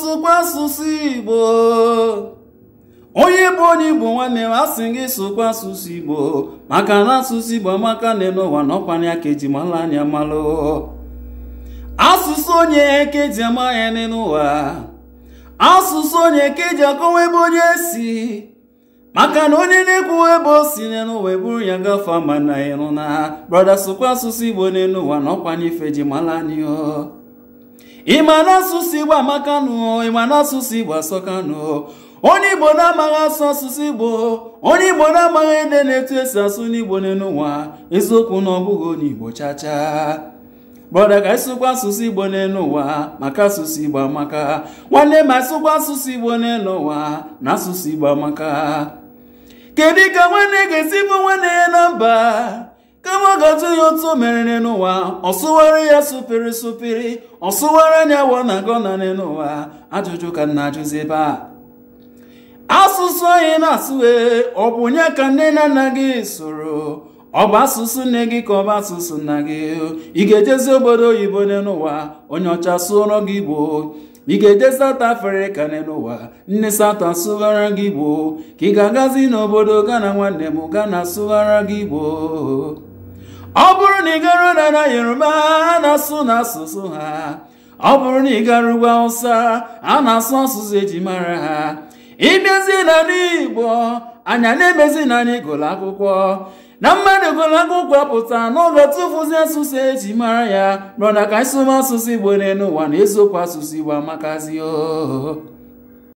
sụkwa asụsụ igbo onye bụ onye igbo nwanne m asị gị sụkwa asụsụ igbo maka na asụsụ igbo amaka na n'ụwa n'ọkwa ya ka eji mara anya malụ asụsụ onye eke ji ama ya n'ụwa asụsụ onye eke ji akọwa ebe onye si maka na onye na-ekwuwe ebe o si n'ụwa eburu ya gafe ma na ịrụ na brọda sụkwa asụsụ igbo n'elu ụwa n'ọkwa ji mara anyị ịma na asụsụ igbo amaka nụ ịma na asụsụ igbo asọka nụ onye igbo na-amaghị asụ asụsụ igbo onye igbo na-amaghị ede na-etu esi asụ n'igbo n'elu ụwa eziokwu na ọbụghị bụghị onye igbo chacha brọda ka ịsụkwa asụsụ igbo n'elu ụwa maka asụsụ igbo amaka nwanne ma ịsụkwa asụsụ igbo n'elu ụwa na asụsụ igbo amaka kedu ka nwanne ga-esi bụ nwanne ya na mba ga ya otu meriri n'ụwa ọsụwere ya supiri supiri ọsụwere na ewo na gọnanị n'ụwa ajụjụ ka nna ajụzi ebe a asụsụ anyị na-asụwe ọ bụ onye ka nne na nna gị soro ọ bụ asụsụ nne gị ka ọ bụ asụsụ nna gị ị ga-ejezi obodo oyibo n'ụwa onye ọcha sụọrọ gị igbo ị ga-eje South Africa n'ụwa nne satọ asụghara gị igbo ka ị ga-agazi n'obodo gana nwanne m Ghana asụghara gị igbo ọ bụrụ na ị garuo na na yoruba a na-asụ n'asụsụ ha ọ bụrụ na ị garugwa awụsa a na-asụ asụsụ eji mara ha na n'ala igbo anya na-emezi na anyị gụrụ akwụkwọ na mmadụ gụrụ akwụkwọ pụta n'ụlọ tụfuzi asụsụ eji mara ya nọ na ka ịsụma asụsụ igbo n'elu ụwa na ezokwa asụsụ igbo amakazio